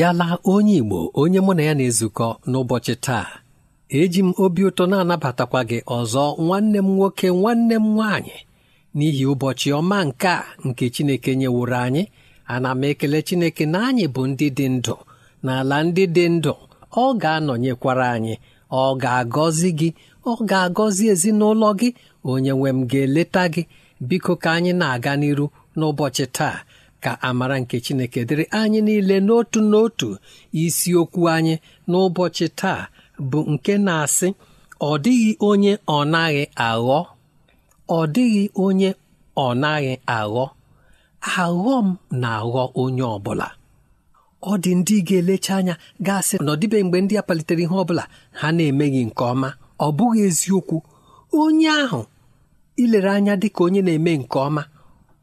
abịala onye Igbo onye mụ na ya na-ezukọ n'ụbọchị taa eji m obi ụtọ na-anabatakwa gị ọzọ nwanne m nwoke nwanne m nwaanyị n'ihi ụbọchị ọma nke a nke Chineke nyeworo anyị ana m ekele Chineke na anyị bụ ndị dị ndụ n'ala ndị dị ndụ ọ ga-anọnyekwara anyị ọ ga-agọzi gị ọ ga-agọzi ezinụlọ gị onye nwe m ga-eleta gị biko ka anyị na-aga n'iru n'ụbọchị taa ka amara nke chineke dịrị anyị niile n'otu n'otu isiokwu anyị n'ụbọchị taa bụ nke na-asị ọ dịghị onye ọ naghị aghọ ọ dịghị onye ọ naghị aghọ aghọ m na-aghọ onye ọbụla ọ dị ndị ga-elecha anya gasị na ọdịbe mgbe ndị a palitere ihe ọbụla ha na-emeghị nke ọma ọ bụghị eziokwu onye ahụ ilere anya dị ka onye na-eme nke ọma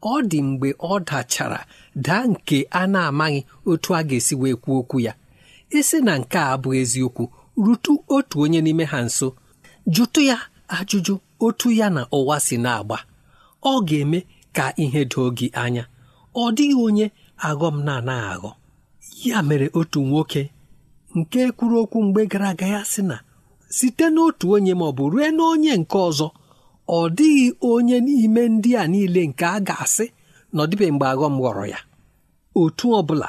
ọ dị mgbe ọ dachara daa nke a na-amaghị otu a ga-esi wee kwuo okwu ya isi e na nke a bụ eziokwu rutu otu onye n'ime ha nso jụtụ ya ajụjụ otu ya na ụwa si na-agba ọ ga-eme ka ihe doo gị anya ọ dịghị onye aghọm na-anaghị aghọ ya mere otu nwoke nke kwuru okwu mgbe gara aga ya sị na site n'otu onye ma ọ bụ rue n'onye nke ọzọ ọ dịghị onye n'ime ndị a niile nke a ga-asị na ọ mgbe aghọm ghọrọ ya otu ọ bụla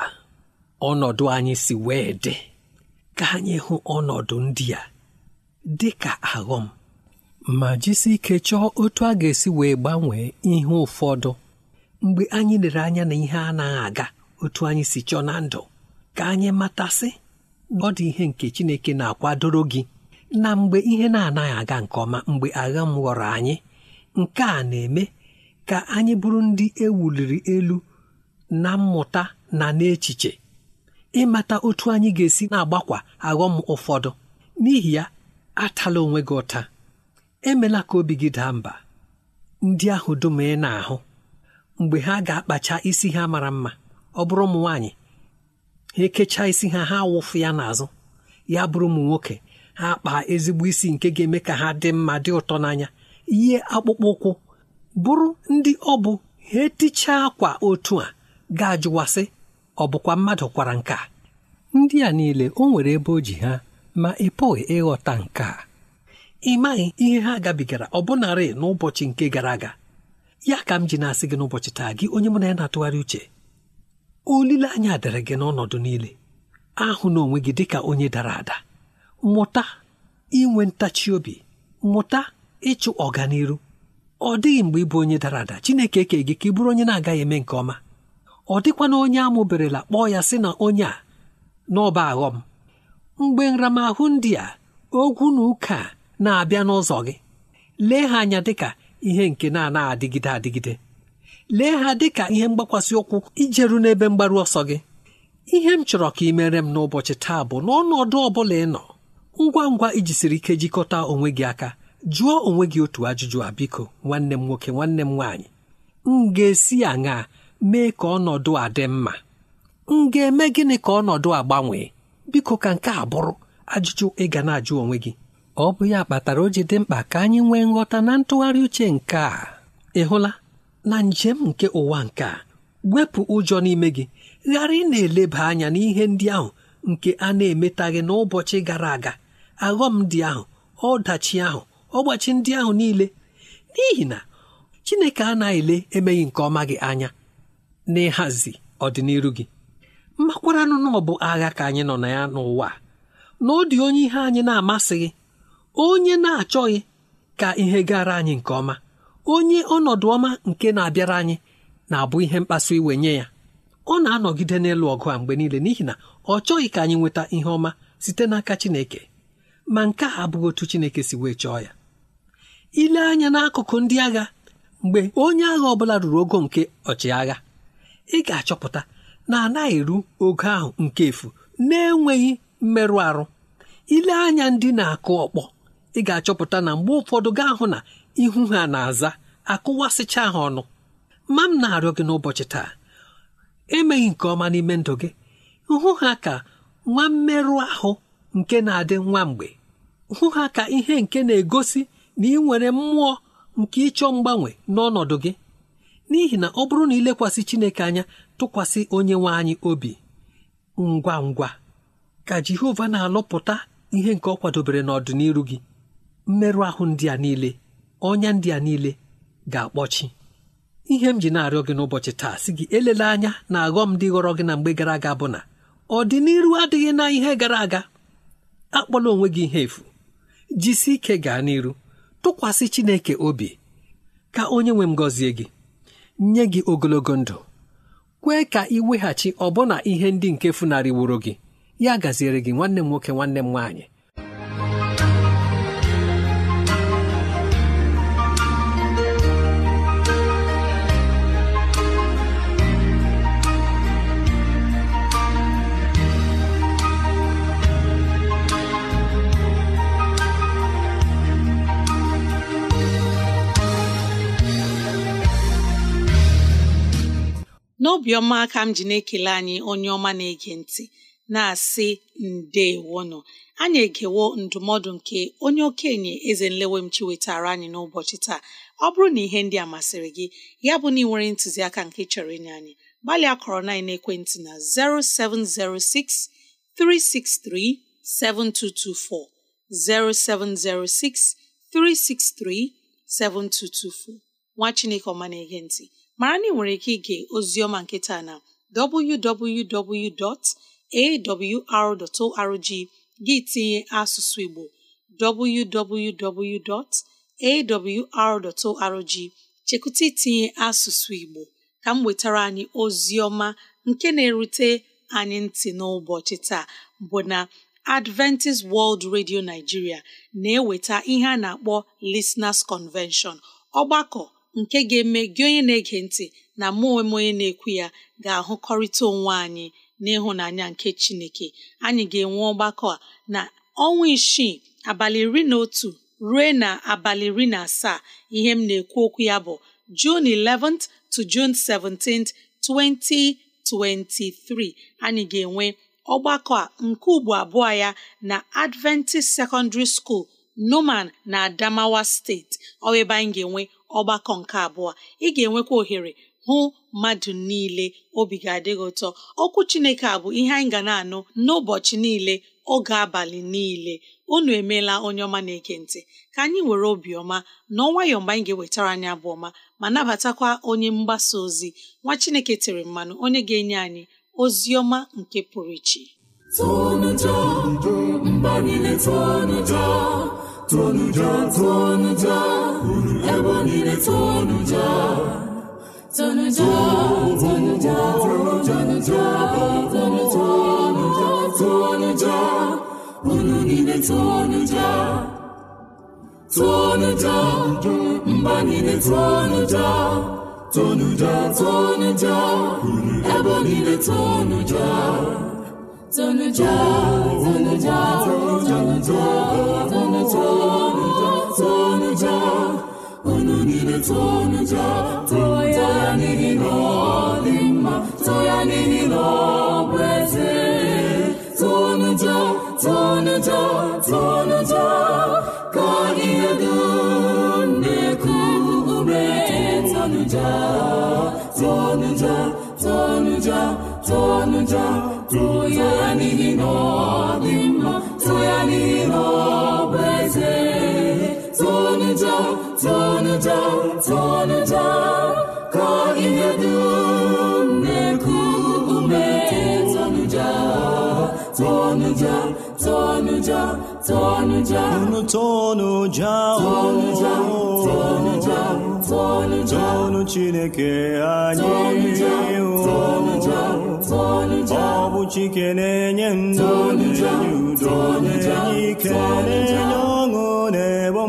ọnọdụ anyị si wee dị ka anyị hụ ọnọdụ ndị a dị ka aghọm ma jisi ike chọọ otu a ga-esi wee gbanwee ihe ụfọdụ mgbe anyị lere anya na ihe anaghị aga otu anyị si chọọ na ndụ ka anyị matasị ọ dị ihe nke Chineke na-akwadoro gị na mgbe ihe na-anaghị aga nke ọma mgbe agha m ghọrọ anyị nke a na-eme ka anyị bụrụ ndị ewuliri elu na mmụta na n'echiche ịmata otu anyị ga-esi na-agbakwa aghọm ụfọdụ n'ihi ya atala onwe gị ụta emela ka obi gị daa mba ndị ahụ dum ị na-ahụ mgbe ha ga-akpacha isi ha mara mma ọ bụrụ ụmụ nwaanyị ha ekechaa isi ha ha wụfụ ya n'azụ ya bụrụ ụmụ nwoke ha kpaa ezigbo isi nke ga-eme ka ha dị mma dị ụtọ n'anya ihe akpụkpọ ụkwụ bụrụ ndị ọ bụ ha etichaa akwa otu a ga-ajụwasị ọ bụkwa mmadụ kwara nka ndị a niile o nwere ebe o ji ha ma ị pụghị ịghọta nke a ị maghị ihe ha gabigara ọbụnarị n'ụbọchị nke gara aga ya ka m ji na-asị gị n'ụbọchị taa gị onye mụ na ya na-atụgharị uche olileanya dịrị gị n'ọnọdụ niile ahụ na onwe gị dịka onye dara ada mụta inwe ntachi obi mụta ịchụ ọganiru ọ dịghị mgbe ịbụ onye dara ada Chineke ekee gị ka ị bụrụ onye na-agaghị eme nke ọma ọ dịkwana onye amụberela kpọọ ya sị na onye a n'ọba aghọm mgbe nramahụ ndị a ogwu na ụka na-abịa n'ụzọ gị lee ha anya dịka ihe nke na-anaghị adịgide adịgide lee ha dịka ihe mgbakwasị ụkwụ ijeru n'ebe mgbaru ọsọ gị ihe m chọrọ ka ị mere m n'ụbọchị taa bụ n'ọnọdụ ọ bụla ị nọ ngwa ngwa ijisiri ike jikọta onwe gị aka jụọ onwe gị otu ajụjụ a biko nwanne m nwoke nwanne m nwaanyị m ga-esi aṅa mee ka ọnọdụ a dị mma m ga-eme gịnị ka ọnọdụ a gbanwee biko ka nke a bụrụ ajụjụ ị ga na-ajụ onwe gị ọ bụ ya kpatara o ji dị mkpa ka anyị nwee nghọta na ntụgharị uche nke a ị hụla na njem nke ụwa nke a wepụ ụjọ n'ime gị ghara ị na-eleba anya n'ihe ndị ahụ nke a na-emetaghị n'ụbọchị gara aga aghọm dị ahụ ọdachi ahụ ọgbachi ndị ahụ niile n'ihi na Chineke anaghị ele emeghị nke ọma gị anya n'ịhazi ọdịnihu gị mmakwaranụ na ọ bụ agha ka anyị nọ na ya n'ụwa na ọ dị onye ihe anyị na-amasịghị onye na-achọghị ka ihe gara anyị nke ọma onye ọnọdụ ọma nke na-abịara anyị na-abụ ihe mkpasu iwe nye ya ọ na-anọgide n'elu ọgụ a mgbe niile n'ihi na ọ chọghị ka anyị nweta ihe ọma site n'aka Chineke ma nke a abụghị otu Chineke si wee chọọ ya ile anya n'akụkụ ndị agha mgbe onye agha ọbụla ruru ogo nke ọchịagha ị ga-achọpụta na anaghị eru ogo ahụ nke efu na-enweghị mmerụ arụ ile anya ndị na-akụ ọkpọ ị ga-achọpụta na mgbe ụfọdụ gaa hụ na ihu ha na-aza akụwasịcha ha ọnụ ma m na-arịọ gị n'ụbọchị taa emeghị nke ọma n'ime ndụ gị hụ ha ka nwa mmerụ ahụ nke na-adị nwa mgbe hụ ha ka ihe nke na-egosi na ị nwere mmụọ nke ịchọ mgbanwe n'ọnọdụ gị n'ihi na ọ bụrụ na ilekwasị Chineke anya tụkwasị onye nwe anyị obi ngwa ngwa ka Jehova na-alụpụta ihe nke ọ kwadobere n'ọdịnihu gị mmerụ ahụ ndị a niile ọnya ndị a niile ga-akpọchi ihe m ji na-arịọ gị n'ụbọchị taa si gị elele anya na aghọm dị ghọrọ gị na mgbe gara aga bụ na ọdịnihu adịghị na ihe gara aga akpọla onwe gị ihe efu jisi ike gaa n'iru tụkwasị Chineke obi ka onye nwe m gọzie gị nye gị ogologo ndụ kwee ka ị weghachi ọbụna ihe ndị nke wuru gị ya gaziere gị nwanne m nwoke nwanne m nwaanyị n'obiọma ka m ji na-ekele anyị onye ọma na-ege ntị na-asị ndeewono anyị egewo ndụmọdụ nke onye okenye eze nlewem chi wetara anyị n'ụbọchị taa ọ bụrụ na ihe ndị a masịrị gị ya bụ na ị nwere ntụziaka nke chọrọ inye anyị gbalịa kọrọ na ekwentị na 0706 363 7224 0706 363 7224 nwa Chineke ọma na-ege ntị mara na ị nwere ike ige ozioma nke taa na www.awr.org gị tinye asụsụ Igbo www.awr.org chekụta itinye asụsụ Igbo ka m wetara anyị ozioma nke na-erute anyị ntị n'ụbọchị taa bụ na Adventist World Radio Nigeria na-eweta ihe a na-akpọ Listeners Convention ọgbakọ nke ga-eme gị onye na-ege ntị na mụ onwe onye na-ekwu ya ga-ahụkọrịta onwe anyị n'ịhụnanya nke Chineke anyị ga-enwe ọgbakọ a na ọnwa isii abalị iri na otu ruo na abalị iri na asaa ihe m na-ekwu okwu ya bụ June 11th to June 17th 2023 anyị ga-enwe ọgbakọ a nke ugbo abụọ ya na Adventist Secondary School Numan na Adamawa steeti ọ ebe anyị ga-enwe ọgbakọ nke abụọ ị ga-enwekwa ohere hụ mmadụ niile obi ga adịghị ụtọ okwu Chineke a bụ ihe anyị ga na-anụ n'ụbọchị niile oge abalị niile unu emeela onye ọma na-ege ka anyị were obiọma na ọnwayọọ mgbe anyị ga-ewetara anyị abụọ ọma ma nabatakwa onye mgbasa ozi nwa Chineke tere mmanụ onye ga-enye anyị ozi ọma nke pụrụ iche tonuja tonuja ebe niile tonuja tonuja tonuja tonuja tonuja tonuja unu niile tonuja tonuja mba niile tonuja tonuja tonuja ebe niile tonuja tonuja tonuja tonuja unu niile tonuja too ya n'ihi na ọ mma ya n'ihi na tonuja tonuja tonuja ka tonuja tonuja tonuja tonuja ya n'ihi ya n'ihi down ihe dị chineke anyị tonuja ọ bụ chike na-enye ndụ na udo na-enye ọṅụ na-ebo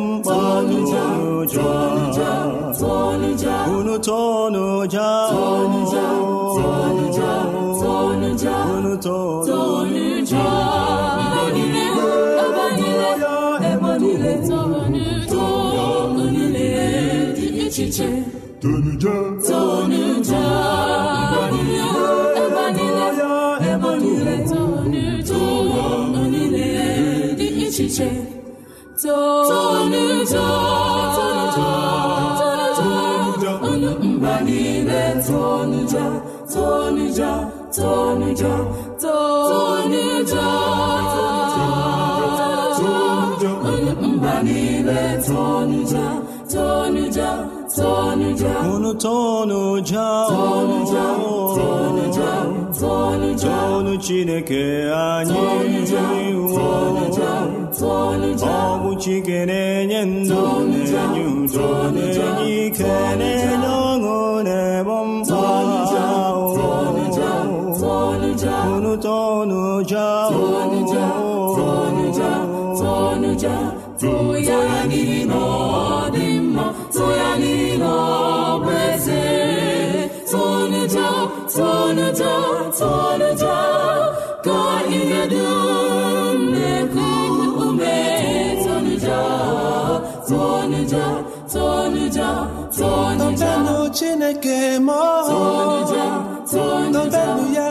Tonuja, tonuja, unu tonuja? Tonuja, tonuja, tonuja, unu tonuja? niile dị echiche tonu ja tonu Tonuja, ebe niile ebe Tonuja, tonija tonija tonija chineke anyị tonụja Chike na-enye ndụ na-enye udo na-enye ike na-enye ọṅụ na-ebo mma tonuja tonuja tonuja tonuja tụọ ya n'ihi na ọ dị tonuja tonuja tonuja toonu chineke mọọ ya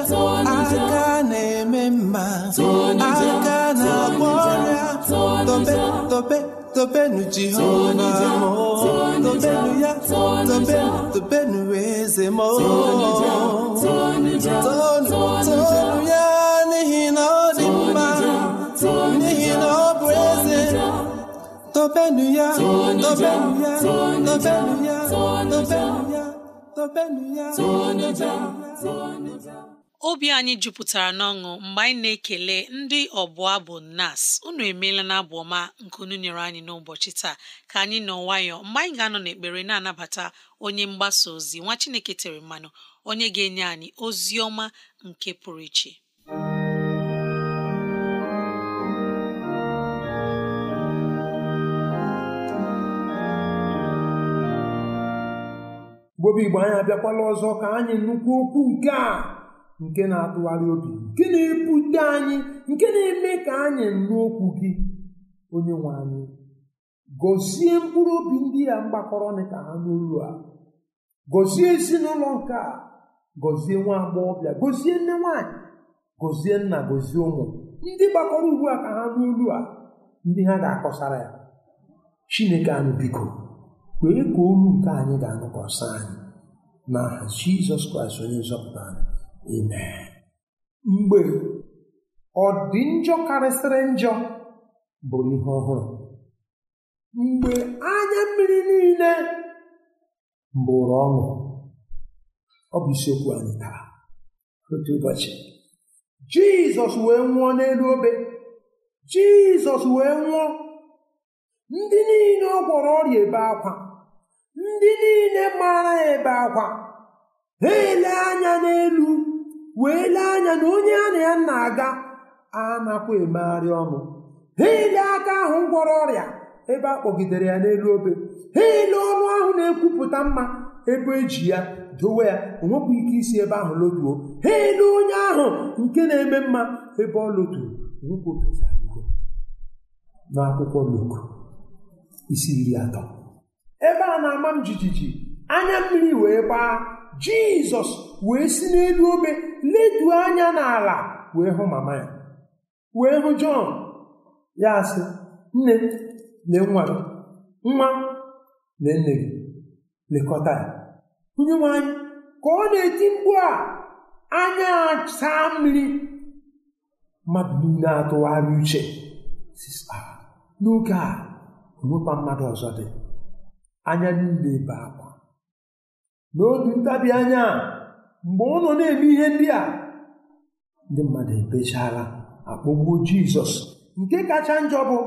aka na-eme mma aka na-agwọ ọrịa tobe tobe tobenu jihona mọọ tobenu ya tobenu tobenu eze ma toonu ya n'ihi na tobenụ ya tobenụ ya tobenụ ya tobenụ ya tobenụ ya tobenụ ya obi anyị jupụtara n'ọṅụ mgbe anyị na-ekele ndị ọbụ abụ nas unu emeela na abụ ọma nke unu nyere anyị n'ụbọchị taa ka anyị nọ nwayọ mgbe anyị ga-anọ n'ekpere na-anabata onye mgbasa ozi nwa Chineke tere mmanụ onye ga-enye anyị ozi ọma nke pụrụ iche mgbobe igbo anyị abịakwala ọzọ ka anyị nnukwu okwu nke a nke na-atụgharị obi nke na-ebute anyị nke na-eme ka anyị nụ okwu gị onye nwe anyị gọzie mkpụrụ obi ndị ya mgbakọrọ ka ha n'olu a gọzie ezinụlọ nke a gọzie nwa agbọghọbịa gọzie nne nwaanyị gọzie nna gọzie ụmụ ndị gbakọrọ ugbu a ka ha n'olu a ndị ha ga-akọsara ya chineke anụ biko kwee ka olu nke anyị ga-anụkwasị anyị na jizọs kraịst onye nzọpụta anyị mgbe ọ dị njọ karịsịrị njọ bụ ihe ọhụrụ mgbe anya mmiri niile bụrụ ọṅụ ọ bụ isiokwu anyị taa otu ụbọchị jizọs wee nwụọ n'elu obe jizọs wee nwụọ ndị niile ọ gwọrọ ọrịa ebe akwa ndị niile mara ebe akwa ha ele anya n'elu wee lee anya na onye a na ya na-aga anakwa emegharị ọnụ ha ele aka ahụ gwọrọ ọrịa ebe a kpọgidere ya n'elu obe ha ele ọnụ ahụ na-ekwupụta mma ebe eji ya dowe ya onwekwa ike isi ebe ahụ lotuo ha ele onye ahụ nke na-eme mma ebe ọ loturu n'akwụkwọ Luk isi iri atọ ebe a na-ama m jijiji anya mmiri wee gbaa jizọs wee si n'elu obe leduo anya n'ala wee hụ mama ya wee hụ jọn ya sị nne lee nwa gị nwa lee nne gị lekọta ya onye nwanyị ka ọ na-eti mkpu a anya saa mmiri mmadụ niile atụgharị uche ah, n'oge a onwekwa mmadụ ọzọ dị anya niile ebe akwa n'otu ntabi anya mgbe ụlọ na-eme ihe ndị a ndị mmadụ ebechara akpọgbuo jizọs nke kacha njọ bụ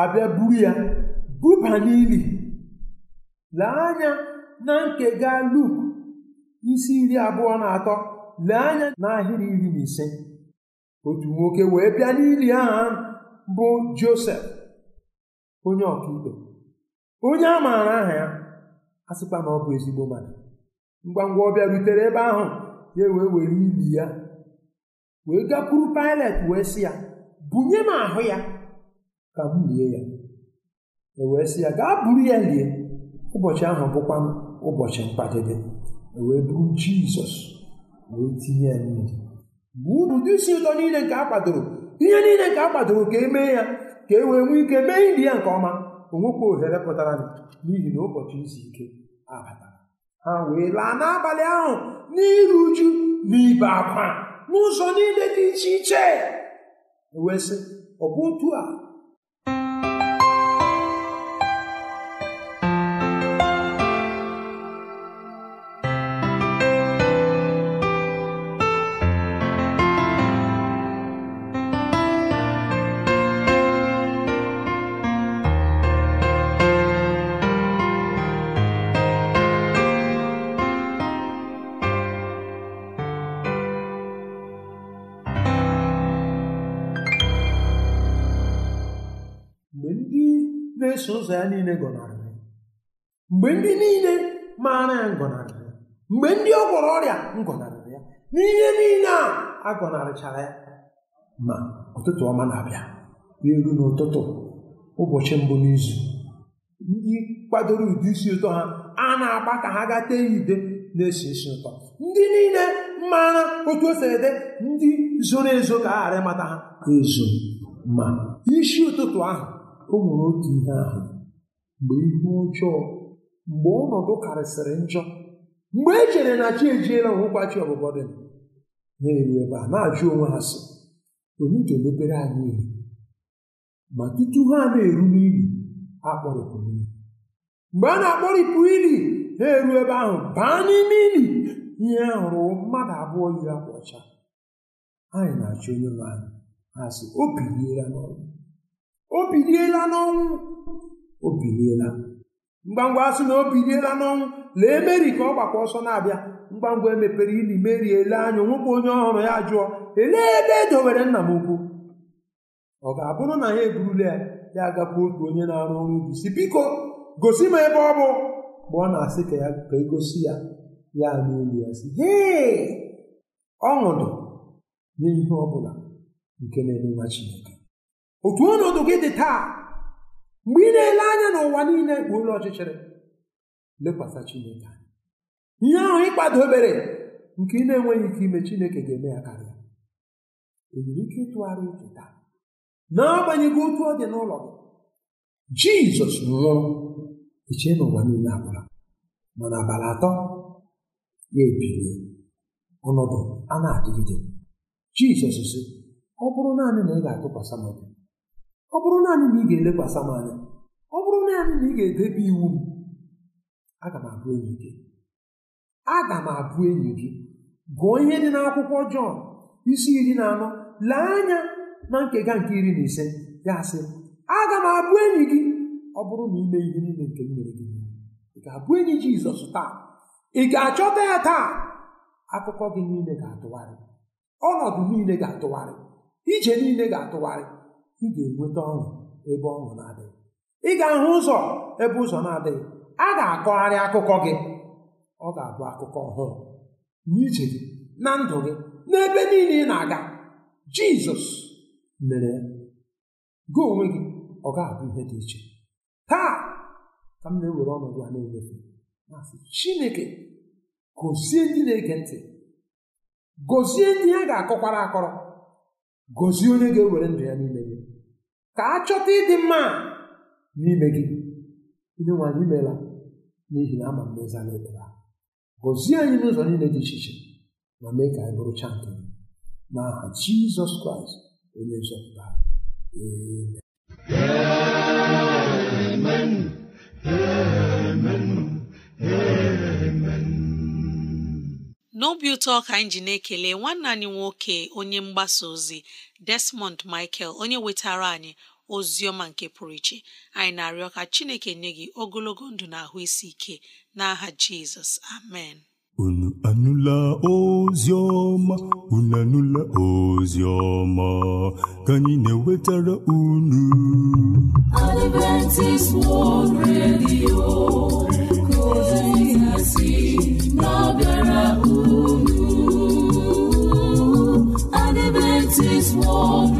abịa buru ya buba n'ili lee anya na nke ga luk isi iri abụọ na atọ lee anya n'ahịrị iri na ise otu nwoke wee bịa n'ili aha bụ josef onye ọkaikpe onye a maara aha ya a sịkwa na ọ bụ ezigbo mmadụ ngwa ngwa ọ bịarutere ebe ahụ ya wee were ili ya wee gakwuru Pilet wee sị ya bunye m ahụ ya ka m lie ya e wee sị ya gaa buru ya lie ụbọchị ahụ bụkwa ụbọchị mkpadebe e wee buru Jizọs wee tinye ya n'ili mgbe ụdụdị isi ụtọ niile nke a kwadoro ihe niile nke a kwadoro ka e mee ya ka e wee nwee ike mee ili ya nke ọma o nwekwa ohere pụtara n'ihi na ụbọchị izu ike abatara ha wee laa n'abalị ahụ n'iru uju na ibe akwa n'ụzọ niile dị iche iche e wee sị ọ bụ otu a ụzọ ya niile gọnarịrị mgbe ndị niile maara ya ngọnarịrị ya mgbe ndị ọ gwọrọ ọrịa ngọnarịrị ya n'ihe niile a agọnarịchara ya ma ụtụtụ ọma na-abịa n'elu n'ụtụtụ ụbọchị mbụ n'izu ndị kwadoro ụdị isi ụtọ ha a na-agba ka ha gaa tee ya na-esi isi ụtọ ndị niile maara otu o ede ndị zoro ezo ka a ghara ịmata ha ezo ma isi ụtụtụ ahụ o nwere otu ihe ahụ mgbe ihe ọjọọ mgbe ọnọdụ karịsịrị njọ mgbe e chere na chi ejiela chi ọbụbọ dị na-eru ebe a na-ajụ onwe ha sị onye ga-emepere anyị ihe ma tutu ha na-eru n'ili ha kpọrịpụrụ mgbe a na-akpọrịpụ ili ha eru ebe ahụ baa n'ime ili ihe a hụrụ mmadụ abụọ yi akwa ọcha anyị na-achọ onye nwe anyị ha sị o biliela n'ọnwụ o biliela n'ọnwụ o biliela mgbangwa asị na o biliela n'ọnwụ lee meri ka ọ gbakwa ọsọ na-abịa mgbangwa emepere ili meri ele anya nwoke onye ọhụrụ ya jụọ elee ebe e nna m ukwu ọ ga-abụrụ na ya eburula ya ya agakwa otu onye na-arụ ọrụ ubi si biko gosi m ebe ọ bụ mgbe ọ na-asị ka ya ka egosi ya ya n'olu ya si hee ọṅụdụ nye ihe ọ bụla nke na-enye nwa Chineke otu ọnọdụ gị dị taa mgbe ị na-ele anya n'ụwa niile bụ ụlọ ọchịchịrị lekwasị Chineke anya ihe ahụ ịkpado obere nke ị na-enweghị ike ime Chineke ga-eme ya karịa enwere ike ịtụgharị uche na n'agbanyeghị otu ọ dị n'ụlọ gị Jizọs nwụrụ ichie n'ụwa niile abụla mana abalị atọ ya ebiri ọnọdụ a na-adịgide Jizọs si ọ bụrụ naanị na ị ga-atụkwasị m ọ bụrụ naanị na ị ga-elekwasị m anya ọ bụrụ naanị na ị ga-edebe iwu m aga m abụ enyi gị aga m abụ enyi gị gụọ ihe dị n'akwụkwọ Jọn isi iri na anọ lee anya na nkega nke iri na ise ya sị aga m abụ enyi gị ọ bụrụ na ime ihe niile nke m mere gị ị ga-abụ enyi Jizọs taa ị ga-achọta ya taa akụkọ gị niile ga-atụgharị ọnọdụ niile ga-atụgharị ije niile ga-atụgharị ị ga-enweta ọṅụ ebe ọṅụ na-adịghị ị ga-ahụ ụzọ ebe ụzọ na-adịghị a ga-akọgharị akụkọ gị ọ ga-abụ akụkọ ọhụrụ n'ije gị na ndụ gị n'ebe niile ị na-aga jizọs mere gị onwe gị ọ ga-abụ ihe dị iche taa ka m na-ewere ọnọdụ a na chineke gozie ndị na-ege ntị gozie ndị ha ga-akọkwara akọrọ gozie onye ga-ewere ndụ ya niile ka a ịdị mma n'ime gị onye nwanyị anyị n'ihi na ama mmezi anyị ekpere gọzie anyị n'ụzọ niile dị iche iche ma mee ka anyị bụrụcha nke gị n'aha jizọs kraịst onye nzọpụta ee. n'obi ụtọ ka anyị ji na-ekele nwanne anyị nwoke onye mgbasa ozi Desmond Michael onye wetara anyị Ozioma nke pụrụ iche anyị na-arịọ ka chineke nye gị ogologo ndụ na ahụ isi ike n'aha jizọs amen unu anụla ozioma, unu anụla ozioma, ka anyị na-ewetara unu Adventist World Radio si unu Adventist World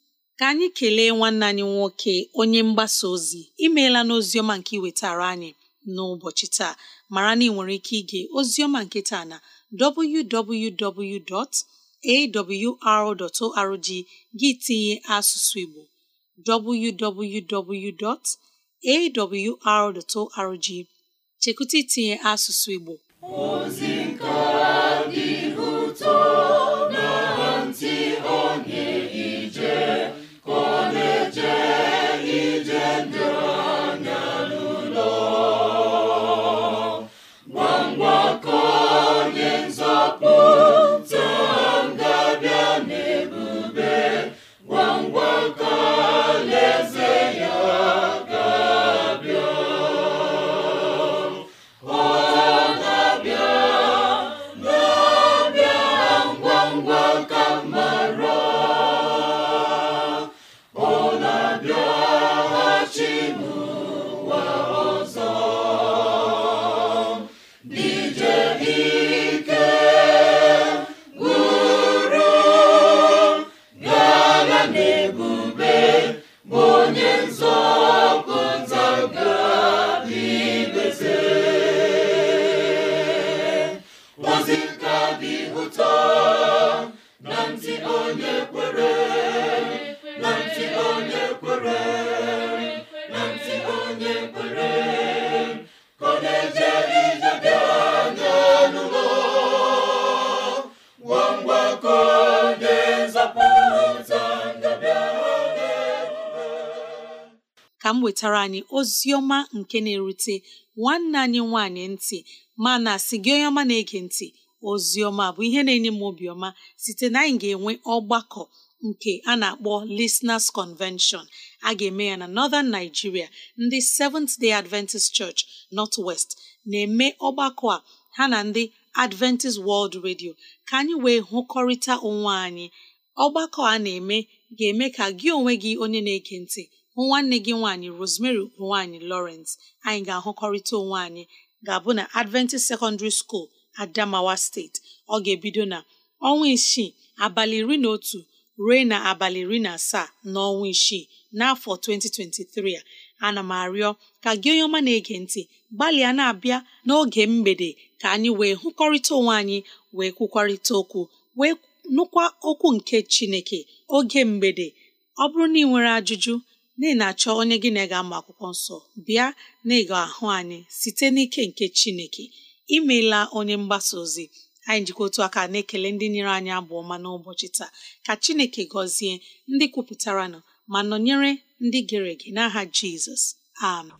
ka anyị kelee nwanne anyị nwoke onye mgbasa ozi imeela n'oziọma nke iwetara anyị n'ụbọchị taa mara na ị nwere ike ige ozioma nke taa na www.awr.org gị tinye asụsụ Igbo www.awr.org chekwụta itinye asụsụ Igbo ozi nke dị ụtọ wetara anyị ozi ọma nke na-erute nwanne anyị nwanyị ntị ma na gị onye ọma na-ege ntị ozi ọma bụ ihe na-enye m obiọma site na anyị ga-enwe ọgbakọ nke a na-akpọ Listeners Convention a ga-eme ya na Northern Nigeria ndị Seventh Day Adventist Church North West na-eme ọgbakọ a ha na ndị Adventist World Radio ka anyị wee hụkọrịta onwe anyị ọgbakọ a na-eme ga-eme ka gị onwe gị onye na-ege ntị nwanne gị nwaanyị Rosemary nwaanyị Lawrence anyị ga-ahụkọrịta onwe anyị ga-abụ na Adventist Secondary School Adamawa Steeti ọ ga-ebido na ọnwa isii abalị iri na otu ruo na abalị iri na asaa ọnwa isii n'afọ 2023 a ana m arịọ ka gị onye ọma na-ege ntị gbalịa na-abịa n'oge mgbede ka anyị wee hụkọrịta onwe anyị wee kwukwarịta okwu wee nụkwa okwu nke Chineke oge mgbede ọ bụrụ na ị nwere ajụjụ n'ihi na achọ onye gị na ga ama akwụkwọ nsọ bịa na ịga ahụ anyị site n'ike nke chineke imeela onye mgbasa ozi anyị njikọ otu aka na-ekele ndị nyere anyị abụ ọma n'ụbọchị taa ka chineke gọzie ndị kwupụtaranụ ma nọnyere ndị gere ege n'aha jizọs amen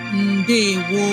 ndewo